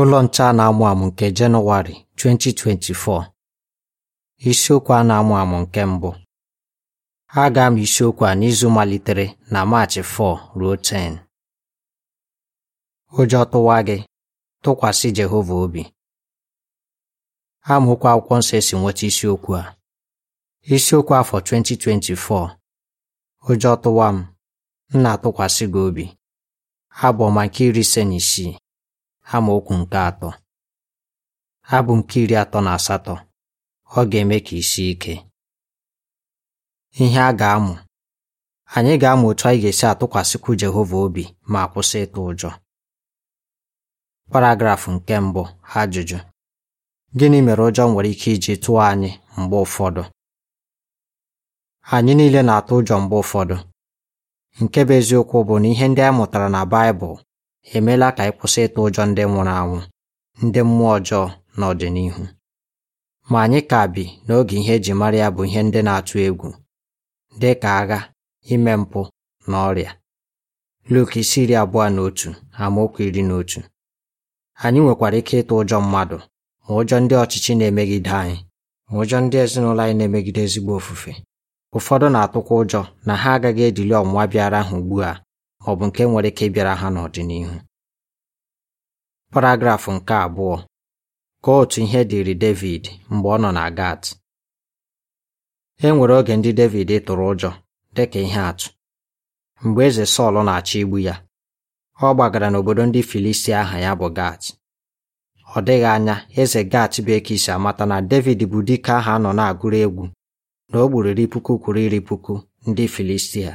ụlọ nche a na-amụ amụ nke Jenụwarị 2024 isiokwu a na-amụ amụ nke mbụ a ga-amụ isiokwu a n'izu malitere na Maachị 4 ruo 10 ụjọ tụwa gị tụkwasị Jehova obi amaokwu akwụkwọ nsọ esi nweta isiokwu a isiokwu afọ 2024 ụjọ tụwa m m na-atụkwasị gị obi abụ nke iri ise na isii amaokwu nke atọ abụ nke iri atọ na asatọ ọ ga-eme ka isi ike ihe a ga-amụ anyị ga-amụ otu anyị ga-esi atụkwasịkwu Jehova obi ma kwụsị ịtụ ụjọ paragrafụ nke mbụ ajụjụ gịnị mere ụjọ nwere ike iji tụọ anyị mgbe ụfọdụ anyị niile na-atụ ụjọ mgbe ụfọdụ nke bụ eziokwu bụ na ihe ndị anyị mụtara na Baịbụl emeela ka anyị kwụsị ịtụ ụjọ ndị nwụrụ anwụ ndị mmụọ ọjọọ n'ọdịnihu ma anyị ka bi n'oge ihe eji mara ya bụ ihe ndị na-atụ egwu dị ka agha ime mpụ na ọrịa Luk isi iri abụọ na otu amaokwu iri na otu anyị nwekwara ike ịtụ ụjọ mmadụ ma ụjọ ndị ọchịchị na-emegide anyị ma ụjọ ndị ezinụlọ anyị na-emegide ezigbo ofufe ụfọdụ na-atụkwa ụjọ na ha agaghị edili ọmụma bịara ha ugbu a ma ọ bụ nke nwere ike ịbịara ha n'ọdịnihu paragrafụ nke abụọ kọọ otu ihe dịrị David mgbe ọ nọ na Gat e nwere oge ndị David tụrụ ụjọ dịka ihe atụ mgbe eze Sọl na-achọ igbu ya ọ gbagara n'obodo ndị Filistia aha ya bụ Gat ọ dịghị anya eze Gat bụ ekisi amata na David bụ dike aha a nọ na-agụrụ egwu na o gburu iri puku kwuru iri puku ndị Filistia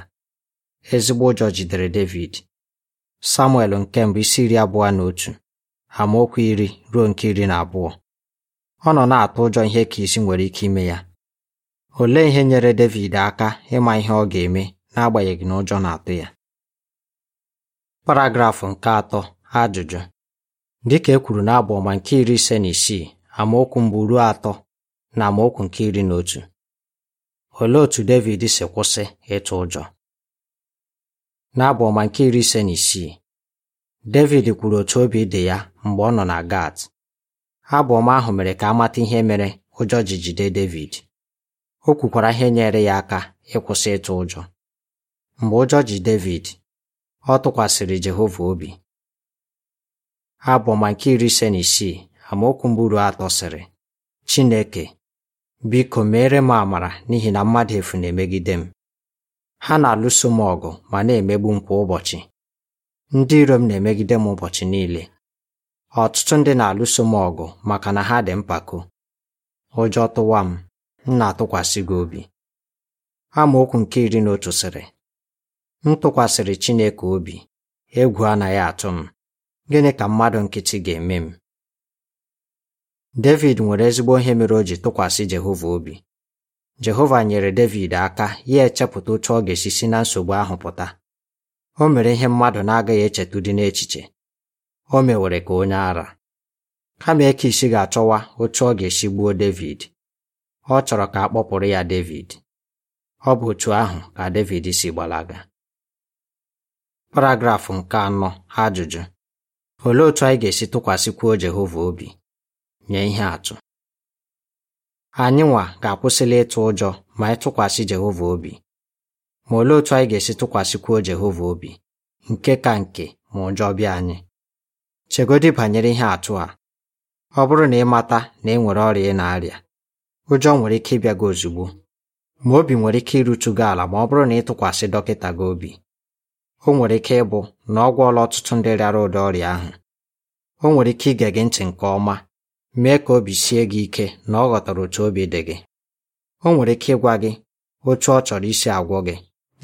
Ezigbo ụjọ jidere Devid. Samuel nke mbụ isi iri abụọ na otu amaokwu iri ruo nke iri na abụọ ọ nọ na-atụ ụjọ ihe ka isi nwere ike ime ya olee ihe nyere Devid aka ịma ihe ọ ga-eme n'agbanyeghị na ụjọ na-atụ ya paragrafụ nke atọ ajụjụ dịka e kwuru ọma nke iri ise na isii amaokwu mbụ ruo atọ na amaokwu nke iri na otu olee otú Devid si kwụsị ịtụ ụjọ n'abụ ọma nke iri ise na isii David kwuru otu obi dị ya mgbe ọ nọ na Gat abụ ahụ mere ka a mata ihe mere ụjọ ji jide David o kwukwara ihe nyere ya aka ịkwụsị ịtụ ụjọ mgbe ụjọ ji David ọ tụkwasịrị Jehova obi abụ ọma nke iri ise na isii amaokwu mburu atọ sịrị Chineke biko meere m amara n'ihi na mmadụ efu na-emegide m Ha na-alụso m ọgụ ma na-emegbu m kwa ụbọchị. Ndị iro m na-emegide m ụbọchị niile. Ọtụtụ ndị na-alụso m ọgụ maka na ha dị mpako. Ụjọ tụwa m, m na-atụkwasị gị obi. Amaokwu nke iri na otu sịrị. M tụkwasịrị Chineke obi, egwu anaghị atụ m. Gịnị ka mmadụ nkịtị ga-eme m? Devid nwere ezigbo ihe mere o ji tụkwasị Jehova obi. Jehova nyere Devid aka ya echepụta otu ọ ga-esi si na nsogbu ahụ pụta o mere ihe mmadụ na-agaghị echetu dị n'echiche o mewere ka onye ara kama e isi ga-achọwa otu ọ ga-esi gbuo Devid ọ chọrọ ka a kpọpụrụ ya Devid ọ bụ otu ahụ ka Devid si gbalaga Paragraf nke anọ ajụjụ olee otu anyị ga-esi tụkwasịkwuo Jehova obi nye ihe atụ Anyịnwa ga-akwụsịla ịtụ ụjọ ma anyị tụkwasị Jehova obi. Ma olee otu anyị ga-esi tụkwasịkwuo Jehova obi, nke ka nke ma ụjọ bịa anyị? chegodi banyere ihe atụ a. Ọ bụrụ na ị mata na ị e nwere ọrịa ị na-arịa, ụjọ nwere ike ịbịa gị ozugbo, ma obi nwere ike irutu gị ala ma ọ bụrụ na ịtụkwasị dọkịta gị obi. O nwere ike ịbụ na ọ gwọọla ọtụtụ ndị rịara ụdị ọrịa ahụ. O nwere ike ige gị ntị nke ọma mee ka obi sie gị ike na ọ ghọtara otu obi dị gị o nwere ike ịgwa gị otu ọ chọrọ isi agwọ gị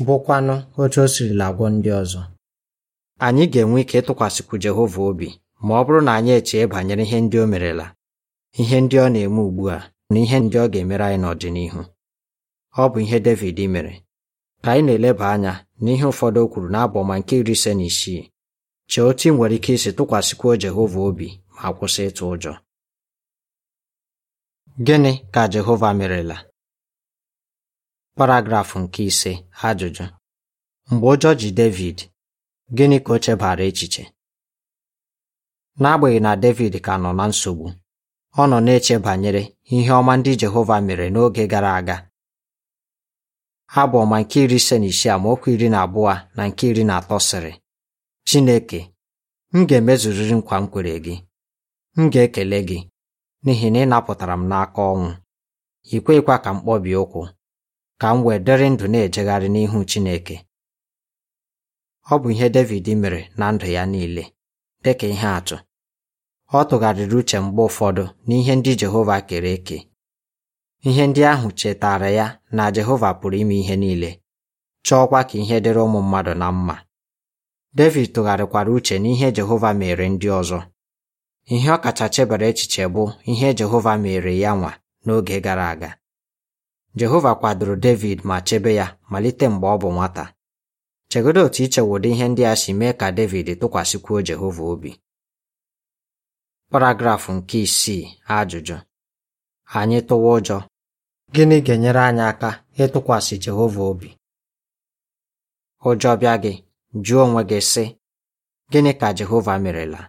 bụkwanụ otu o sirila agwọ ndị ọzọ anyị ga-enwe ike ịtụkwasịkwu Jehova obi ma ọ bụrụ na anyị echee banyere ihe ndị o merela ihe ndị ọ na-eme ugbu a na ihe ndị ọ ga-emere anyị n'ọdịnihu ọ bụ ihe Devid mere ka anyị na-eleba anya n'ihe ụfọdụ o kwuru n'abụ nke iri ise na isii chee otu ị nwere ike isi tụkwasịkwuo Jehova obi ma kwụsị ịtụ ụjọ Gịnị ka Jehova merela? Paragraf nke ise ajụjụ Mgbe ụjọ ji Devid, gịnị ka o chebara echiche? N'agbanyeghị na Devid ka nọ na nsogbu, ọ nọ na-eche banyere ihe ọma ndị Jehova mere n'oge gara aga. Abụ ọma nke iri ise na isii amaokwu iri na abụọ na nke iri na atọ sịrị Chineke, m ga-emezuriri nkwa m kwere gị, m ga-ekele gị n'ihi na ị napụtara m n'aka ọnwụ ikwekwa kweghịkwa ka m kpọbie ụkwụ ka m wee dịrị ndụ na-ejegharị n'ihu Chineke ọ bụ ihe Devid mere na ndụ ya niile dị ka ihe atụ ọ tụgharịrị uche mgbe ụfọdụ n'ihe ndị Jehova kere eke ihe ndị ahụ chetara ya na Jehova pụrụ ime ihe niile chọọkwa ka ihe dịrị ụmụ mmadụ na mma Devid tụgharịkwara uche n'ihe Jehova mere ndị ọzọ Ihe ọ kacha chebere echiche bụ ihe Jehova mere ya nwa n'oge gara aga. Jehova kwadoro Devid ma chebe ya malite mgbe ọ bụ nwata. Chegodo otu ichewodo ihe ndị a si mee ka Devid tụkwasịkwuo Jehova obi. Paragrafụ nke isii ajụjụ anyị tụwa ụjọ gịnị ga-enyere anyị aka ịtụkwasị Jehova obi ụjọ bịa gị jụọ onwe gị sị gịnị ka Jehova merela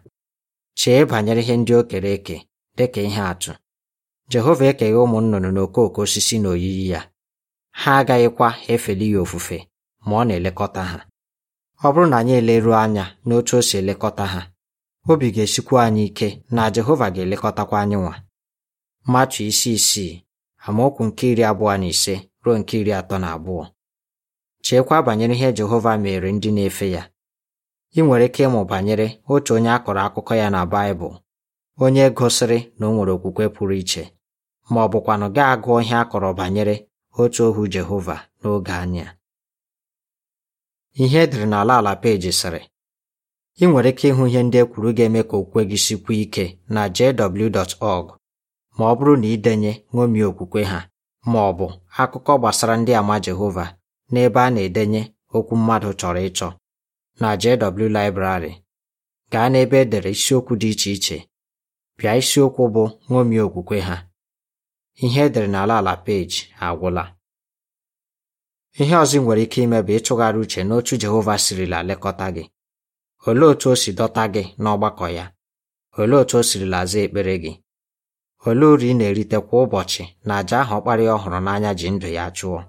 Chee banyere ihe ndị o kere eke dịka ihe atụ Jehova ekeghị ụmụ nnụnụ n'okooko osisi na oyiyi ya ha agaghịkwa efeli ya ofufe ma ọ na-elekọta ha ọ bụrụ na anyị eleruo anya n'otu o si elekọta ha obi ga-esikwa anyị ike na Jehova ga-elekọtakwa anyị nwa Matu isi isii amaokwu nke iri abụọ na ise ruo nke iri atọ na abụọ cheekwa banyere ihe Jehova mere ndị na-efe ya ị nwere ike ịmụ banyere otu onye a kọrọ akụkọ ya na Baịbụl onye gosiri na o nwere okwukwe pụrụ iche ma ọ bụkwanụ gaa agụọ ihe a kọrọ banyere otu ohu Jehova n'oge anya ihe edere n'ala ala peji sịrị ị nwere ike ịhụ ihe ndị e kwuru ga-eme ka okwukwe gị sikwu ike na jw.org ma ọ bụrụ na ịdenye ṅomie okwukwe ha ma ọ bụ akụkọ gbasara ndị ama Jehova n'ebe a na-edenye okwu mmadụ chọrọ ịchọ na JW Library gaa n'ebe edere isiokwu dị iche iche bịa isiokwu bụ ṅomie okwukwe ha ihe edere n'ala ala peji agwụla ihe ọzọ nwere ike ime bụ ịtụgharị uche n'otu Jehova sirila lekọta gị olee otu o si dọta gị n'ọgbakọ ya olee otu o sirila laza ekpere gị olee uru ị na-erite kwa ụbọchị na àjà ahụ ọkpara ọhụrụ n'anya ji ndụ ya chụọ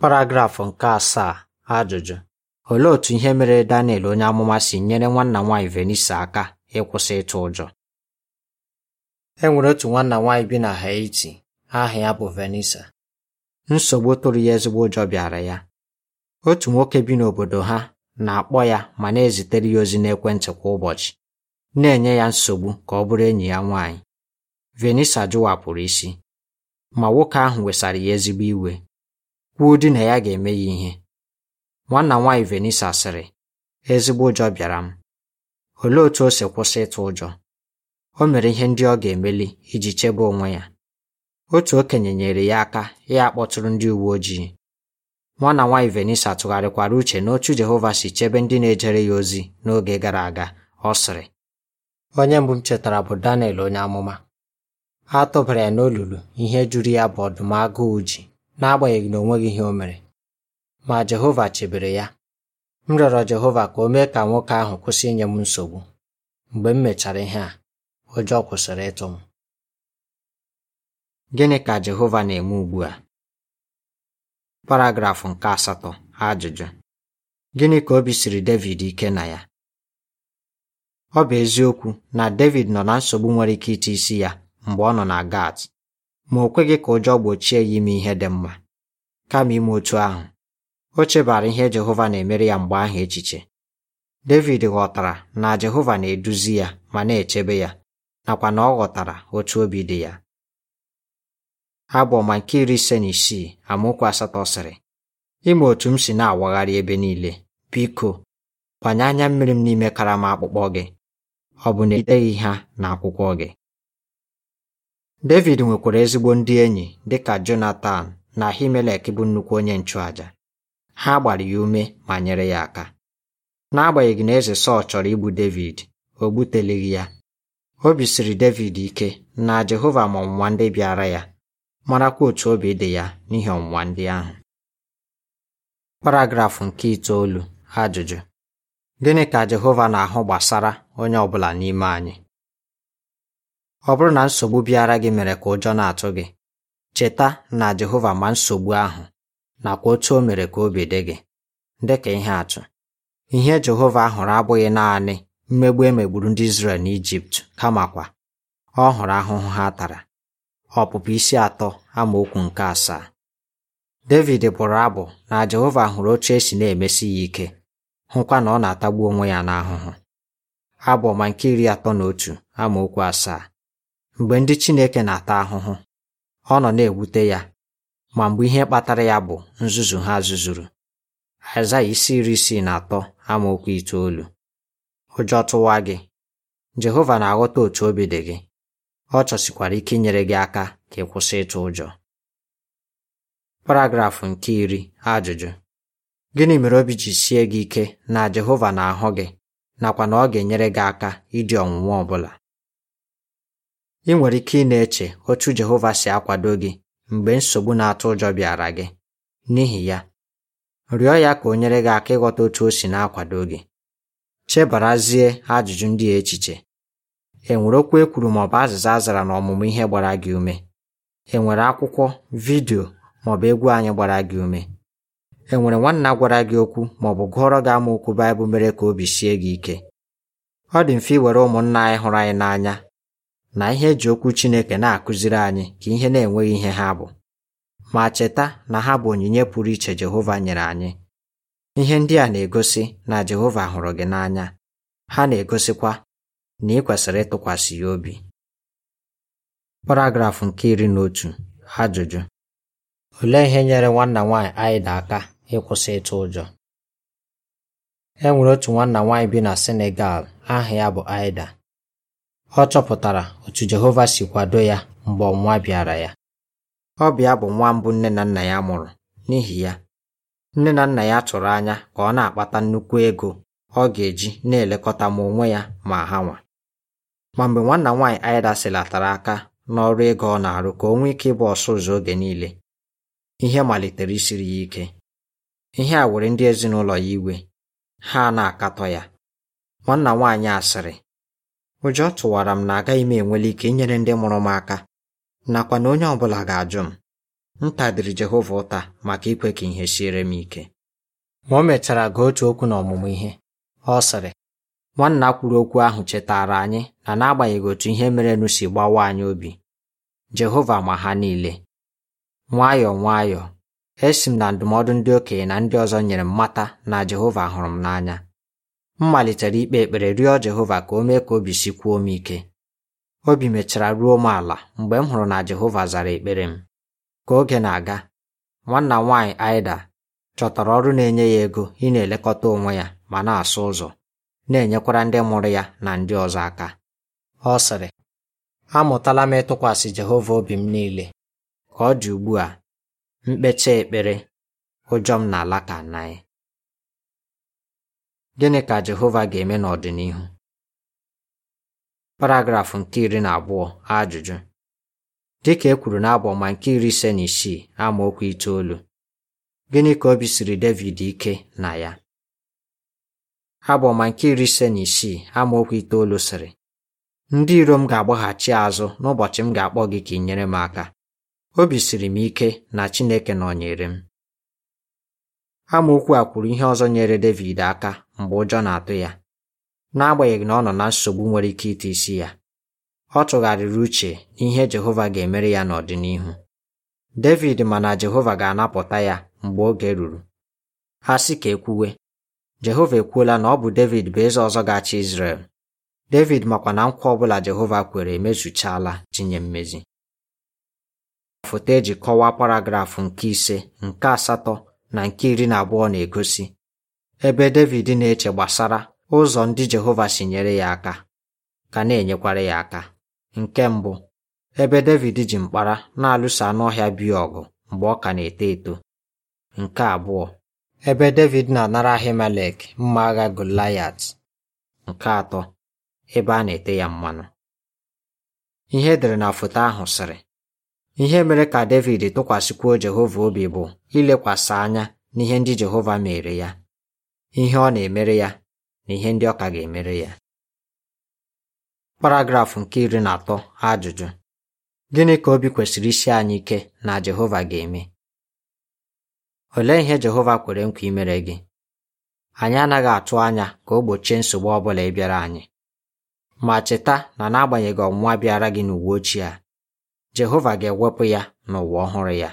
paragrafụ nke asaa ajụjụ Olee otu ihe mere Daniel onye amụma si nyere nwanna nwaanyị Venisa aka ịkwụsị ịtụ ụjọ? E nwere otu nwanna nwaanyị bi na Haiti, aha ya bụ Venisa. Nsogbu tụrụ ya ezigbo ụjọ bịara ya. Otu nwoke bi n'obodo ha na-akpọ ya ma na-ezitere ya ozi n'ekwentị kwa ụbọchị, na-enye ya nsogbu ka ọ bụrụ enyi ya nwaanyị. Venisa jụwapụrụ isi, ma nwoke ahụ wesara ya ezigbo iwe, kwuo di na ya ga-eme ya ihe. Nwanna m nwaanyị Venisa sịrị, ezigbo ụjọ bịara m. Olee otú o si kwụsị ịtụ ụjọ? O mere ihe ndị ọ ga-emeli iji chebe onwe ya. Otu okenye nyere ya aka ya akpọtụrụ ndị uwe ojii. Nwanna nwaanyị Venisa tụgharịkwara uche n'otu Jehova si chebe ndị na-ejere ya ozi n'oge gara aga, ọ sịrị. Onye mbụ m chetara bụ Daniel onye amụma. A tụbara ya n'olulu ihe jụrụ ya bụ ọdụm agụụ ji n'agbanyeghị na o nweghị ihe o mere. ma Jehova chebere ya m rịọrọ Jehova ka o mee ka nwoke ahụ kwụsị inye m nsogbu mgbe m mechara ihe a ụjọ kwụsịrị ịtụ m gịnị ka Jehova na-eme ugbu a paragrafụ nke asatọ ajụjụ gịnị ka obi siri Devid ike na ya ọ bụ eziokwu na Devid nọ na nsogbu nwere ike ite isi ya mgbe ọ nọ na Gat ma o kweghị ka ụjọ gbochie ya ime ihe dị mma kama ime otu ahụ O chebara ihe Jehova na-emere ya mgbe ahụ echiche. Devid ghọtara na Jehova na-eduzi ya ma na-echebe ya nakwa na ọ ghọtara otu obi dị ya. Abụ nke iri ise na isii amaokwu asatọ sịrị ime otu m si na-awagharị ebe niile biko gbanye anya mmiri m n'ime karama akpụkpọ gị ọ bụ na ideghị ha na akwụkwọ gị Devid nwekwara ezigbo ndị enyi dịka Jonatan na Himelek bụ nnukwu onye nchụàja ha gbara ya ume ma nyere ya aka n'agbanyeghị na eze Sọl chọrọ igbu Devid o gbuteleghị ya obi siri Devid ike na Jehova ma ọnwụnwa ndị bịara ya marakwa otu obi dị ya n'ihi ọnwụnwa ndị ahụ paragrafụ nke itoolu ajụjụ gịnị ka Jehova na-ahụ gbasara onye ọbụla n'ime anyị ọ bụrụ na nsogbu bịara gị mere ka ụjọ na-atụ gị cheta na Jehova ma nsogbu ahụ nakwa otu o mere ka obi dị gị ka ihe atụ ihe Jehova hụrụ abụghị naanị mmegbu emegburu ndị Izrel Ijipt, kamakwa ọ hụrụ ahụhụ ha tara ọpụpụ isi atọ amaokwu nke asaa David bụrụ abụ na Jehova hụrụ otu esi na-emesi ya ike hụkwa na ọ na-atagbu onwe ya n'ahụhụ abụ ọma nke iri atọ na otu amaokwu asaa mgbe ndị Chineke na-ata ahụhụ ọ nọ na-ewute ya ma mgbe ihe kpatara ya bụ nzuzu ha zuzuru aịzaya isi iri isii na atọ amaokwu itoolu ụjọ tụwa gị Jehova na-aghọta otu obi dị gị ọ chọsikwara ike inyere gị aka ka ị kwụsị ịtụ ụjọ paragrafụ nke iri ajụjụ gịnị mere obi ji sie gị ike na Jehova na-ahụ gị nakwa na ọ ga-enyere gị aka ịdị ọnwụnwa ọ bụla ị nwere ike ị na-eche otu Jehova si akwado gị mgbe nsogbu na-atụ ụjọ bịara gị n'ihi ya rịọ ya ka o nyere gị aka ịghọta otu o si na-akwado gị chebarazie ajụjụ ndị a echiche e nwere okwu e kwuru maọbụ azịza a zara n'ọmụmụ ihe gbara gị ume e nwere akwụkwọ vidiyo maọbụ egwu anyị gbara gị ume e nwere nwanna gwara gị okwu maọbụ gụọrọ gị amaokwu Baịbụl mere ka obi sie gị ike ọ dị mfe iwere ụmụnna anyị hụrụ anyị n'anya na ihe eji okwu Chineke na-akụziri anyị ka ihe na-enweghị ihe ha bụ ma cheta na ha bụ onyinye pụrụ iche Jehova nyere anyị ihe ndị a na-egosi na Jehova hụrụ gị n'anya ha na-egosikwa na ị kwesịrị ịtụkwasị ya obi paragrafụ nke iri na otu ajụjụ olee ihe nyere nwanna nwaanyị Aịda aka ịkwụsị ịtụ ụjọ e nwere otu nwanna nwaanyị bi na Senegal aha ya bụ Aịda Ọ chọpụtara otu Jehova si kwado ya mgbe ọnwụnwa bịara ya. Ọ bịa bụ nwa mbụ nne na nna ya mụrụ, n'ihi ya, nne na nna ya tụrụ anya ka ọ na-akpata nnukwu ego ọ ga-eji na-elekọta ma onwe ya ma ha nwa. Ma mgbe nwanna nwaanyị Aịda silatara aka n'ọrụ ego ọ na-arụ ka o nwee ike ịbụ ọsụ ụzọ oge niile, ihe malitere isiri ya ike. Ihe a were ndị ezinụlọ ya iwe, ha na-akatọ ya. Nwanna nwaanyị asịrị ụjọ tụwara m na agaghị m enwele ike inyere ndị mụrụ m aka nakwa na onye ọbụla ga-ajụ m m tadiri Jehova ụta maka ikwe ka ihe siere m ike ma o mechara gaa otu okwu n'ọmụmụ ihe ọ sịrị nwanna kwuru okwu ahụ chetaara anyị na n'agbanyeghị otu ihe merenụ si gbawa anyị obi Jehova ma ha niile nwayọọ nwayọọ esi m na ndụmọdụ ndị okenye na ndị ọzọ nyere m mata na Jehova hụrụ m n'anya m malitere ikpe ekpere rịọ Jehova ka o mee ka obi kwuo m ike obi mechara ruo m ala mgbe m hụrụ na Jehova zara ekpere m ka oge na-aga nwanna m nwaanyị Aida chọtara ọrụ na-enye ya ego ị na-elekọta onwe ya ma na-asụ ụzọ na-enyekwara ndị mụrụ ya na ndị ọzọ aka ọ sịrị amụtala m ịtụkwasị Jehova obi m niile ka ọ dị ugbu a mkpecha ekpere ụjọ m na alaka naị Gịnị ka Jehova ga-eme n'ọdịnihu? Paragraf nke iri na abụọ ajụjụ dịka e kwuru ma nke iri ise na isii amaokwu itoolu gịnị ka obi siri Devid ike na ya abọma nke iri ise na isii amaokwu itoolu sịrị ndị iro m ga-agbaghachi azụ n'ụbọchị m ga-akpọ gị ka ị nyere m aka obi siri m ike na Chineke nọnyere m amaokwu a kwuru ihe ọzọ nyere Devid aka mgbe ụjọ na-atụ ya n'agbanyeghị na ọ nọ na nsogbu nwere ike ite isi ya ọ tụgharịrị uche n'ihe Jehova ga-emere ya n'ọdịnihu David ma na Jehova ga-anapụta ya mgbe oge ruru ha sị ka ekwuwe Jehova ekwuola na ọ bụ David bụ eze ọzọ ga-achị Izrel David makwa na nkwa ọbụla Jehova kwere emezuchaala tinye mmezi foto eji kọwaa paragrafụ nke ise nke asatọ na nke iri na abụọ na-egosi ebe Devid na-eche gbasara ụzọ ndị Jehova si nyere ya aka ka na-enyekwara ya aka nke mbụ ebe Devid ji mkpara na-alụso anụ ọhịa biya ọgụ mgbe ọ ka na-eto eto nke abụọ ebe Devid na-anara Ahimelek mma agha Goliat nke atọ ebe a na-ete ya mmanụ ihe edere na foto ahụ sịrị ihe mere ka Devid tụkwasịkwuo Jehova obi bụ ilekwasị anya n'ihe ndị Jehova mere ya ihe ọ na-emere ya na ihe ndị ọka ga-emere ya paragrafụ nke iri na atọ ajụjụ gịnị ka obi kwesịrị isi anyị ike na Jehova ga-eme olee ihe Jehova kwere nkwa imere gị anyị anaghị atụ anya ka o gbochie nsogbu ọ bụla ịbịara anyị ma cheta na n'agbanyeghị ọnwụnwa bịara gị n'uwe ochie a Jehova ga-ewepụ ya n'ụwa ọhụrụ ya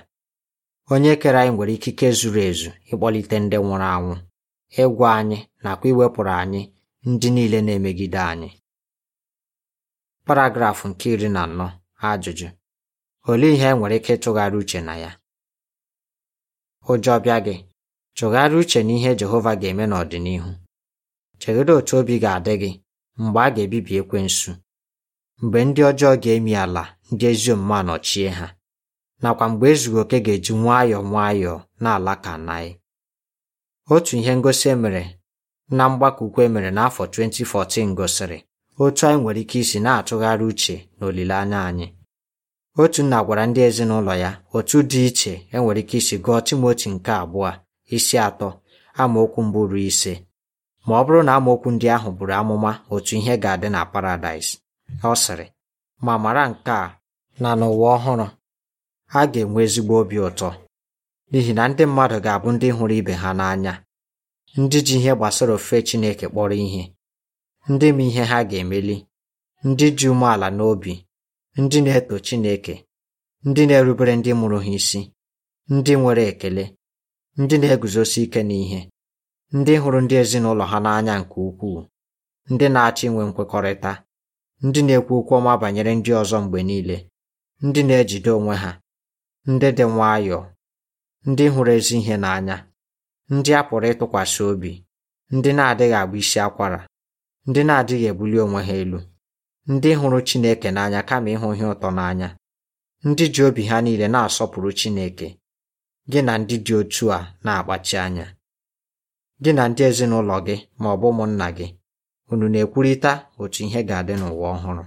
onye kere anyị nwere ikike zuru ezu ịkpọlite ndị nwụrụ anwụ ịgwa anyị nakwa iwepụrụ anyị ndị niile na-emegide anyị paragrafụ nke iri na anọ ajụjụ olee ihe nwere ike ịtụgharị uche na ya ụjọ bịa gị tụgharị uche na ihe Jehova ga-eme n'ọdịnihu chegide otu obi ga-adị gị mgbe a ga-ebibi ekwensu mgbe ndị ọjọọ ga-emi ala ndị ezi omume n'ọchie ha nakwa mgbe ezughị oke ga-eji nwayọọ nwayọọ na alaka naị Otu ihe ngosi emere na mgbakọ emere e n'afọ 2014 gosiri otu anyị nwere ike isi na-atụgharị uche na olileanya anyị. otu nna gwara ndị ezinụlọ ya otu dị iche enwere ike isi gụọ Timoti nke abụọ isi atọ amaokwu mbụ ruo ise ma ọ bụrụ na amaokwu ndị ahụ bụrụ amụma otu ihe ga-adị na Paradaịs. Ọ sịrị ma mara nke a na n'ụwa ọhụrụ a ga-enwe ezigbo obi ụtọ n'ihi na ndị mmadụ ga-abụ ndị hụrụ ibe ha n'anya ndị ji ihe gbasara ofufe Chineke kpọrọ ihe ndị ma ihe ha ga-emeli ndị ji umeala n'obi ndị na-eto Chineke ndị na-erubere ndị mụrụ ha isi ndị nwere ekele ndị na-eguzosi ike n'ihe ndị hụrụ ndị ezinụlọ ha n'anya nke ukwuu ndị na-achọ inwe nkwekọrịta ndị na-ekwu okwu ọma banyere ndị ọzọ mgbe niile ndị na-ejide onwe ha ndị dị nwayọọ ndị hụrụ ezi ihe n'anya ndị a pụrụ ịtụkwasị obi ndị na-adịghị agba isi akwara ndị na-adịghị ebuli onwe ha elu ndị hụrụ Chineke n'anya kama ịhụ ihe ụtọ n'anya ndị ji obi ha niile na-asọpụrụ Chineke gị na ndị dị otu a na-akpachi anya gị na ndị ezinụlọ gị ma ọ bụ ụmụnna gị unu na-ekwurịta otu ihe ga-adị n'ụwa ọhụrụ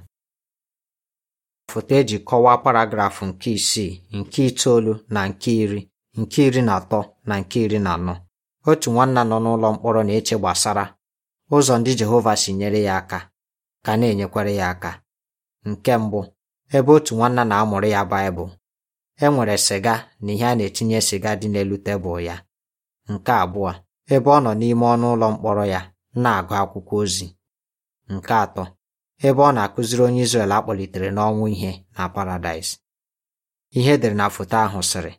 foto eji kọwaa paragrafụ nke isii nke itoolu na nke iri nke iri na atọ na nke iri na anọ otu nwanna nọ n'ụlọ mkpọrọ na-eche gbasara ụzọ ndị Jehova si nyere ya aka ka na-enyekwara ya aka nke mbụ ebe otu nwanna na-amụrụ ya Baịbụl e nwere sịga na ihe a na-etinye sịga dị n'elu tebụl ya nke abụọ ebe ọ nọ n'ime ọnụ ụlọ mkpọrọ ya na-agụ akwụkwọ ozi nke atọ ebe ọ na-akụziri onye Izrel akpọlitere n'ọnwụ ihe na Paradaịs ihe edere na foto ahụ sịrị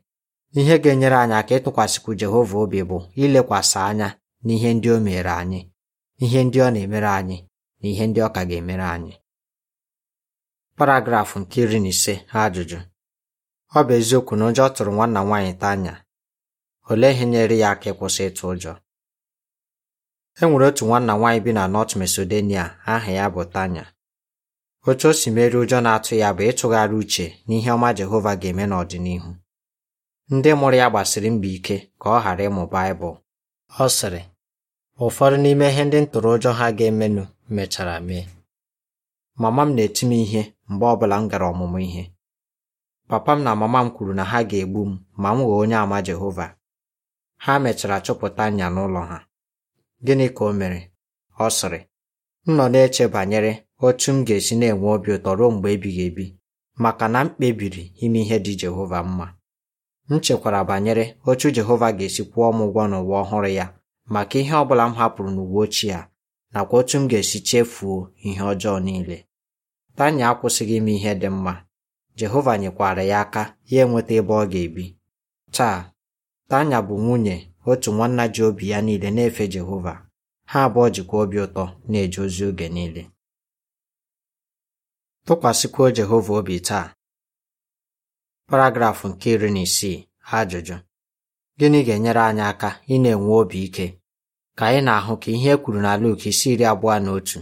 Ihe ga-enyere anyị aka ịtụkwasịkwu Jehova obi bụ ilekwasị anya n'ihe ndị o mere anyị, ihe ndị ọ na-emere anyị na ihe ndị ọ ka ga-emere anyị. Paragrafụ nke iri na ise ajụjụ ọ bụ eziokwu na ụjọ tụrụ nwanna nwaanyị Tanya olee ihe nyere ya aka ịkwụsị ịtụ ụjọ e nwere otu nwanna nwaanyị bi na North Macedonia aha ya bụ Tanya otu o si merie ụjọ na-atụ ya bụ ịtụgharị uche n'ihe ọma Jehova ga-eme n'ọdịnihu ndị mụrụ ya gbasiri mbọ ike ka ọ ghara ịmụ Baịbụl ọ sịrị ụfọdụ n'ime ihe ndị ntụrụ ha ga-emenụ mechara mee mama m na-eti m ihe mgbe ọbụla m gara ọmụmụ ihe papa m na mama m kwuru na ha ga-egbu m ma m ghọọ onye àmà Jehova ha mechara chụpụta nya n'ụlọ ha gịnị ka o mere ọ sịrị m nọ na-eche banyere otu m ga-esi na-enwe obi ụtọ ruo mgbe ebighị ebi maka na m kpebiri ime ihe dị Jehova mma m chekwara banyere otu Jehova ga-esi kwụọ m ụgwọ n'ụwa ọhụrụ ya maka ihe ọ bụla m hapụrụ n'ụwa ochie a nakwa otu m ga-esi chefuo ihe ọjọọ niile Tanya akwụsịghị ime ihe dị mma Jehova nyekwara ya aka ya enweta ebe ọ ga-ebi taa Tanya bụ nwunye otu nwanna ji obi ya niile na-efe Jehova ha abụọ jikwa obi ụtọ na-eje ozi oge niile tụkwasịkwuo Jehova obi taa paragrafụ nke iri na isii ajụjụ gịnị ga-enyere anyị aka ị na-enwe obi ike ka anyị na-ahụ ka ihe e kwuru na Luk isi iri abụọ na otu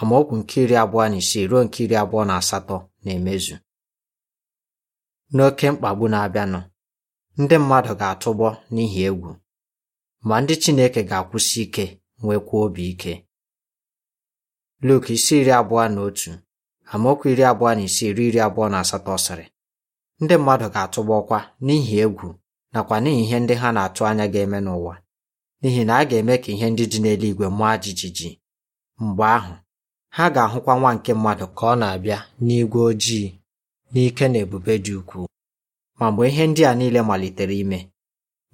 amaokwu nke iri abụọ na isii ruo nke iri abụọ na asatọ na-emezu n'oke mkpagbu na-abịanụ ndị mmadụ ga atụgbọ n'ihi egwu ma ndị Chineke ga-akwụsị ike nwekwa obi ike Luk isi iri abụọ na otu amaokwu iri abụọ na isii ruo iri abụọ na asatọ sịrị ndị mmadụ ga atụgbọkwa ọkwa n'ihi egwu nakwa n'ihi ihe ndị ha na-atụ anya ga-eme n'ụwa n'ihi na a ga-eme ka ihe ndị dị n'eluigwe mụọ jijiji mgbe ahụ ha ga-ahụkwa nwa nke mmadụ ka ọ na-abịa n'igwe ojii n'ike na ebube dị ukwuu ma mgbe ihe ndị a niile malitere ime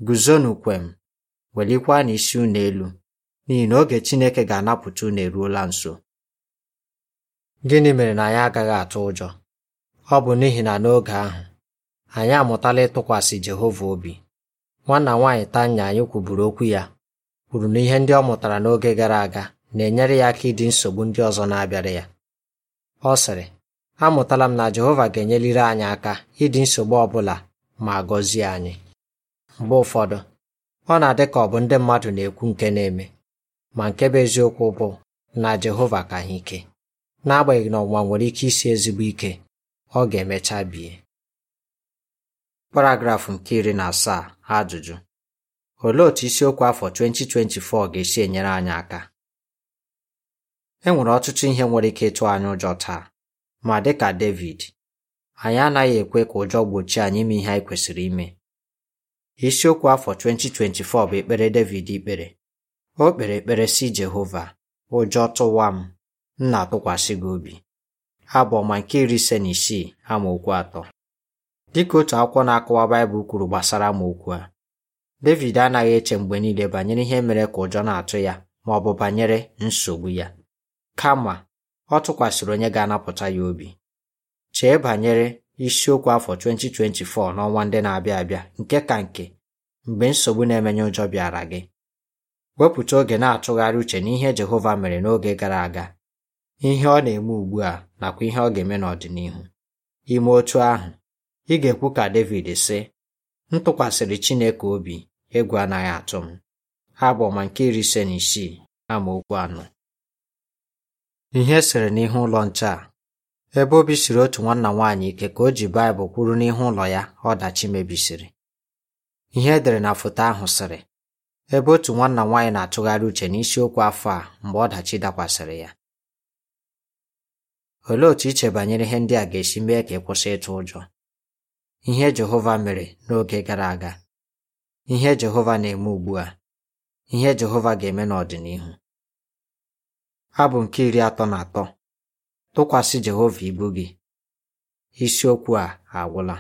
guzonu kwem welikwa na isi unu elu n'ihi na oge Chineke ga-anapụta unu eruola nso gịnị mere na anyị agaghị atụ ụjọ ọ bụ n'ihi na n'oge ahụ anyị amụtala ịtụkwasị Jehova obi nwanna nwaanyị Tanya anyị kwuburu okwu ya kwuru na ihe ndị ọ mụtara n'oge gara aga na-enyere ya aka ịdị nsogbu ndị ọzọ na-abịara ya ọ sịrị amụtala m na Jehova ga-enyeliri anyị aka ịdị nsogbu ọ bụla ma gọzie anyị mgbe ụfọdụ ọ na-adị ka ọ bụ ndị mmadụ na-ekwu nke na-eme ma nke bụ eziokwu bụ na Jehova ka ha ike n'agbanyeghị na ọnwụnwa nwere ike isi ezigbo ike ọ ga-emecha bie paragrafụ nke iri na asaa ajụjụ olee otu isiokwu afọ 2024 ga-esi enyere anyị aka e nwere ọtụtụ ihe nwere ike ịtụ anyị ụjọ taa ma ka David anyị anaghị ekwe ka ụjọ gbochie anyị ime ihe anyị kwesịrị ime isiokwu afọ 2024 bụ ekpere David ikpere o kpere ekpere si Jehova ụjọ tụwa m m na-atụkwasị gị obi abụ ọma nke iri ise na isii amaokwu atọ Dịka otu akwụkwọ na-akọwa Baịbụl kwuru gbasara m okwu a, Devid anaghị eche mgbe niile banyere ihe mere ka ụjọ na-atụ ya ma ọ bụ banyere nsogbu ya. Kama, ọ tụkwasịrị onye ga-anapụta ya obi. Chee banyere isiokwu afọ 2024 n'ọnwa ndị na-abịa abịa nke ka nke mgbe nsogbu na-emenye ụjọ bịara gị. Wepụta oge na-atụgharị uche n'ihe Jehova mere n'oge gara aga, ihe ọ na-eme ugbu a nakwa ihe ọ ga-eme n'ọdịnihu. Ime otu ahụ ị ga-ekwu ka David si: m tụkwasịrị Chineke obi egwu anaghị atụ m ha ma nke iri ise na isii amaokwu anọ ihe e sịrị n'ihu ụlọ nche a ebe obi siri otu nwanna nwaanyị ike ka o ji baịbụl kwuru n'ihu ụlọ ya ọdachi mebisiri ihe edere na foto ahụ sịrị ebe otu nwanna nwaanyị na-atụgharị uche n'isiokwu afọ a mgbe ọdachi dakwasịrị ya olee otu iche banyere ihe ndị a ga-esi mee ka ị kwụsị ịtụ ụjọ ihe Jehova mere n'oge gara aga, ihe Jehova na-eme ugbu a, ihe Jehova ga-eme n'ọdịnihu. Abụ nke iri atọ na atọ tụkwasị Jehova ibu gị isiokwu a agwụla